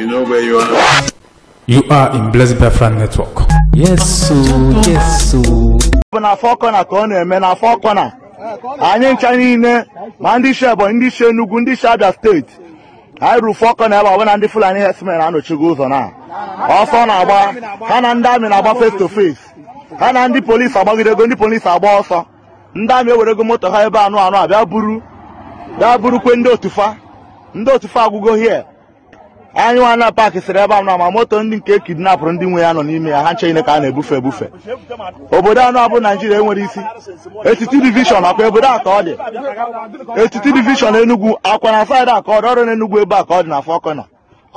You know where you are? You are in Blessed Befran Network. Yes, so, yes, so. n'afọ kọna ka ọ na-eme n'afọ kọna anyị ncha niile ma ndị si Ebonyi ndị si Enugu ndị si Abia steeti anyị ruru fọ kọna ebe ọbụla ndị Fulani herdsmen anọchigo ụzọ na ọsọ na-agba ha na ndị amị na-agba face to face ha na ndị polisi agbagidego ndị polisi agba ọsọ ndị amị ego moto ha ebe anụ anụ a bịa buru bịa buru kwe ndị otufa ndị otufa agwụgo hie anyịwa na paakị sịrị ebe a nọ ma moto ndị nke kidnapụrụ ndị nwe ya nọ n'ime ya ha ncheine ka a na-ebufe ebufe obodo anọ abụ naijiria enwere isi etiti divishọn akwa obodo a ka ọ dị etiti divishọn enugwu akwa na saịdị aka ọ dị ọrụ n'enugwu ebe a ka ọ dị na fọkọna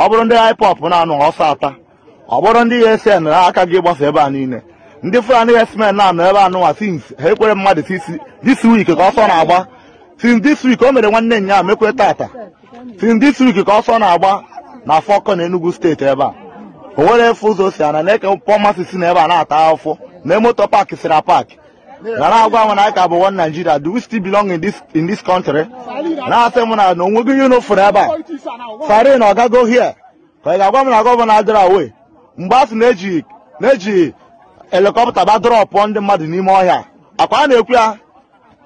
ọ bụrụ ndị haipọp na-anụ ọsọ ata ọ bụrụ ndị esn na aka gị gbasa ebe a niile ndị fulani esmen na-anọ ebe anụnwa sins ha ekwere mmadụ sisi dis wik ka ọsọ na-agba sins dis wik o mere nwanne nya mekwere tata sins dis wik ka ọsọ na-agba na Afọkọ na Enugu steeti ebe a o nwere efu ụzọ si ana na-eke pọmasị si na ebe a na-ata afọ na emoto paaki sira paaki gara agwa m na anyị ka bụ one Nigeria do we still belong in this in this country na-asị m na na onweghị ihe n'ofuru ebe a sarin ọ gago hie ka ị ga-agwa m na gọvanọ adịra awe mgbe a sị na-eji na-eji helikọpta badrọpụ ndị mmadụ n'ime ọhịa akwa a na-ekwu ya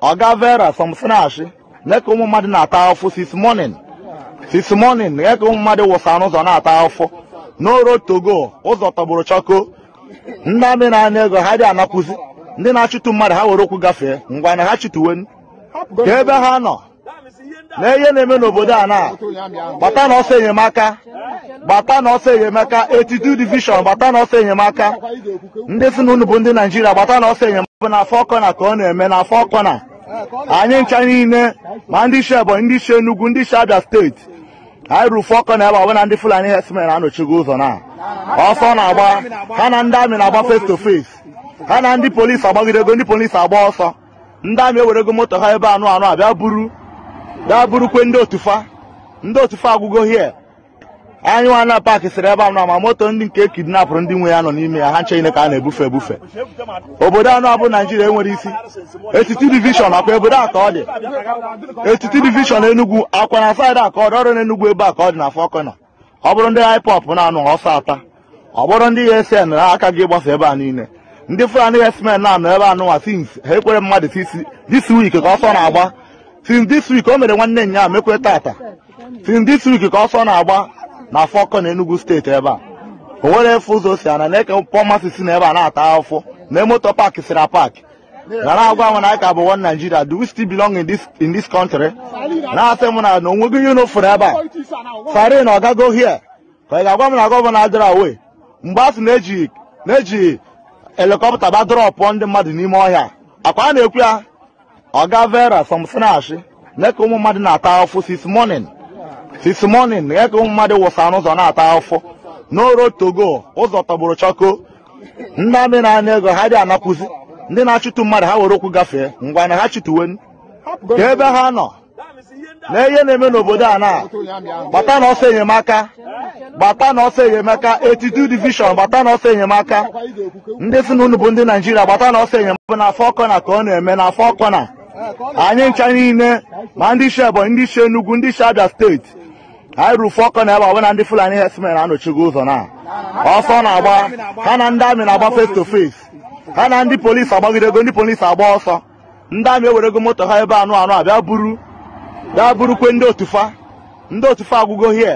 ọga vera som snashi na-eke ụmụ mmadụ na-ata afọ sis morning since morning eke ụmụ mmadụ wụsa n'ụzọ na-ata afọ n'oro togo ụzọ tọgburu chọko ndị amị na-ana ego ha dị anakwụzi ndị na-achụtụ mmadụ ha nwere ụkwụ gafee ngwa na ha chụtụwe ka ebe ha nọ na na-eme n'obodo a na gbata na enyemaka gbata na enyemaka etitu divishọn gbata na enyemaka ndị si na unu bụ ndị naijiria gbata na ọsọ enyemaka bụ na afọ ọkọna ka ọ na-eme na afọ ọkọna anyị ncha niile ma ndị isi Ebonyi ndị isi Enugu ndị isi Abia steeti anyị rufu ọkọ na ebe ọbụla ndị Fulani herdsmen anọchigo ụzọ na ọsọ na-agba ha na ndị amị na-agba face to face ha na ndị polisi agbagidego ndị polisi agba ọsọ ndị amị ewerego moto ha ebe anụ anụ bịa buru bịa burukwe ndị otufa ndị otufa agwụgo hie anyị na paakị siri ebe anọ ma moto ndị nke kidnapụrụ ndị nwe ya nọ n'ime ya ha ncheghine ka a na-ebufe ebufe obodo anọ bụ naijiria enwere isi etiti divishọn akwa obodo aka ọ dị etiti divishọn enugwu akwa na saịdị aka ọ dị ọrụ na ebe a ka ọ dị na fọkọna ọ bụrụ ndị haipọp na-anụ ọsọ ata ọ bụrụ ndị esn na aka gị ịgbasa ebe a niile ndị fulani esmen na-anọ ebe anụnwa sins ha ekwere mmadụ sisi dis wik ka ọsọ na-agba dis wik o mere nwanne nya mekwere tata sins dis wik ka ọsọ na-agba na afọkọ na enugu steeti ebe a o nwere efe ụzọ si ana na-eke pọmasị si na ebe a na-ata afọ na emoto paakị sira paakị. na agwa m na ka bụ one Nigeria do we still belong in this in this country na-asị m na na onweghị ihe ebe a sarin na ọgago hie ka ị ga-agwa m na gọvanọ adịrọ awe mgbe a sị na-eji na-eji helikọpta badrọpụ ndị mmadụ n'ime ọhịa akwa a na-ekwu ya ọga vera somsinashi na-eke ụmụ mmadụ na-ata afọ sis morning this morning eke mmadụ wụsa ụzọ na-ata afọ n'oro togo ụzọ tọgburu chọko ndị amị na-ana ego ha dị anapụzi ndị na-achụtụ mmadụ ha were okwu gafee ngwa na ha chụtụwe ka ebe ha nọ na ihe na-eme n'obodo a na gbata na ọsọ enyemaka gbata na ọsọ enyemaka 82 division gbata na ọsọ enyemaka ndị si na unu bụ ndị naijiria gbata na ọsọ enyemaka na afọ kọna ka ọ na-eme na afọ kọna anyị ncha niile ma ndị isi ebonyi ndị isi enugwu ndị isi abia steeti anyị ruru ọkọ na ebe na ndị fulani herdsmen anọchigo ụzọ na ọsọ na-agba ha na ndị amị na-agba face to face ha na ndị polisi agbagidego ndị polisi agba ọsọ ndị amị ewerego moto ha ebe anụ anụ a bịa buru bịa burukwe ndị otufa ndị otufa agwụgo hie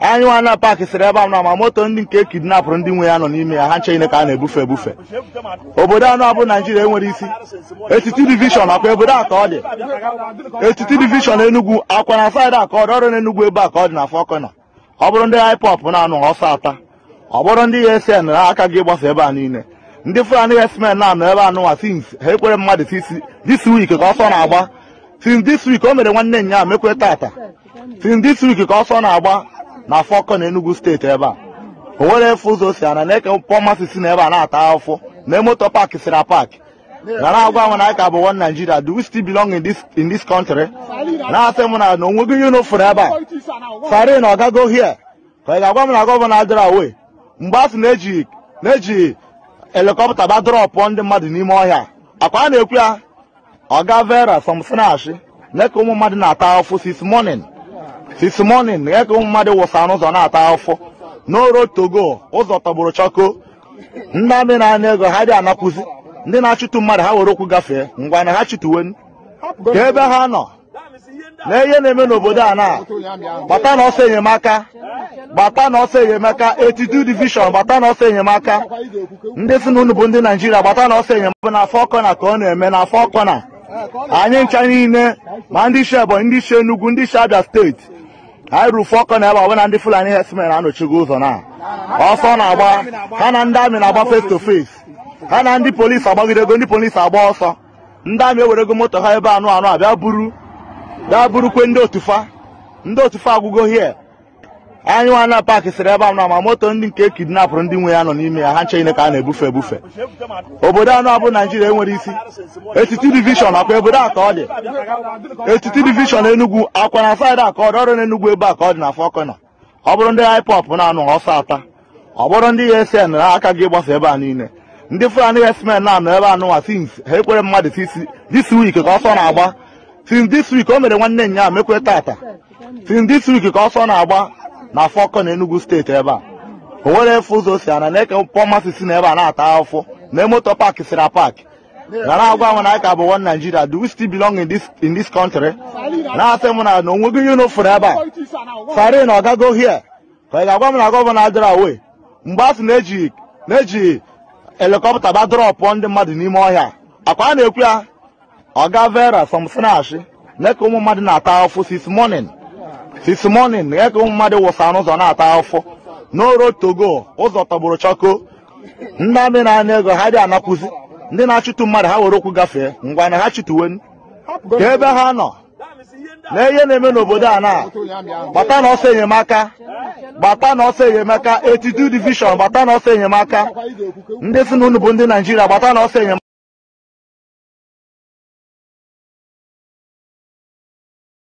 anyịwa na paakị siri ebe anọ na ma moto ndị nke kidnapụrụ ndị nwe ya nọ n'ime ya ha nche ka a na-ebufe ebufe obodo anọ abụ naijiria enwere isi etiti divishọn akwa obodo a ka ọ dị etiti divishọn enugwu akwa na saịdị a ka ọ dị ọrụ n'enugwu ebe a ka ọ dị na fọkọna ọ bụrụ ndị haipop na-anụ ọsọ ata ọ bụrụ ndị esn na aka gị gbasa ebe a niile ndị fulani esmen na-anọ ebe anụnwa sins ha ekwere mmadụ this week ka ọsọ na-agba since this week o mere nwanne nya mekwere tata since this ka ọsọ na-agba na afọkọ na Enugu steeti ebe a o nwere efu ụzọ si ana na-eke pọmasị si na ebe a na-ata afọ na moto paaki sira paaki gara agwa m na anyị ka bụ one Nigeria do we still belong in this in this country na-asị m na na onweghị ihe n'ofuru ebe a sari na ọgago hie ka ị ga-agwa m na gọvanọ adịra awe mgbe a na-eji na-eji helikọpta badrọpụ ndị mmadụ n'ime ọhịa akwa a na-ekwu ya ọga vera sọm snashi na-eke ụmụ mmadụ na-ata afọ sis morning since morning eke ụmụ mmadụ wụsa ụzọ na-ata afọ n'oro togo ụzọ tọgburu chọko ndị amị na-anya ego ha dị anakwụzi ndị na-achụtụ mmadụ ha were okwu gafee ngwa na ha chụtụwe ka ebe ha nọ na ihe na-eme n'obodo a na gbata na ọsọ enyemaka gbata na ọsọ enyemaka etitu divishọn gbata na ọsọ enyemaka ndị si na unu bụ ndị naijiria gbata na ọsọ enyemaka na afọ ọkọna ka ọ na-eme na afọ ọkọna anyị ncha niile ma ndị isi ebonyi ndị isi enugwu ndị isi abia steeti anyị rufu ọkọ na ebe na ndị fulani herdsmen anọchigo ụzọ na ọsọ na-agba ha na ndị amị na-agba face to face ha na ndị polisi agbagidego ndị polisi agba ọsọ ndị amị ewerego moto ha ebe anụ anụ abịa buru bịa burukwe ndị otufa ndị otufa agwụgo hie anyị nwa na paakị siri ebe a na ma moto ndị nke e kidnapụrụ ndị nwe ya nọ n'ime ya ha ncheghine ka a na-ebufe ebufe obodo anọ abụ naijiria enwere isi etiti divishọn akwa obodo a ka ọ dị etiti divishọn enugwu akwa na saịdị a ka ọ dị ọrụ n'enugwu ebe a ka ọ dị na fọkọna ọ bụrụ ndị haịpọp na-anụ ọsọ ata ọ bụrụ ndị esn na aka gị gbasa ebe a niile ndị fulani esmen na-anọ ebe anụnwa sins ha ekwere mmadụ sisi dis wik ka ọsọ na-agba sins dis wik o mere nwanne nya mekwere tata sins dis wik ka ọsọ na-agba na afọkọ na Enugu steeti ebe a o nwere efe ụzọ si ana na-eke pọmasị si na ebe a na-ata afọ na emoto paaki sira paaki na na-agwa m na anyị ka bụ one Nigeria do we still belong in this in this country na-asị m na na onwego ihe n'ofuru ebe a sari na ọgago hie ka ị ga-agwa m na gọvanọ adịra awe mgbe a sị na-eji na-eji helikọpta ba drọpụ ndị mmadụ n'ime ọhịa akwa a na-ekwu ya ọga vera Sọm na ka ụmụ mmadụ na-ata afọ sis morning this morning ya ka ụmụ mmadụ wụsa ụzọ na-ata afọ n'oro togo ụzọ tọgburu chọko ndị amị na-ana ego ha dị anapụzi ndị na-achụtụ mmadụ ha were okwu gafee ngwa na ha chụtụwen ka ebe ha nọ na ihe na-eme n'obodo a na gbata na ọsọ enyemaka bata na ọsọ enyemaka etitu divishọn bata na ọsọ enyemaka ndị si na unu bụ ndị naijiria bata na ọsọ enyemaka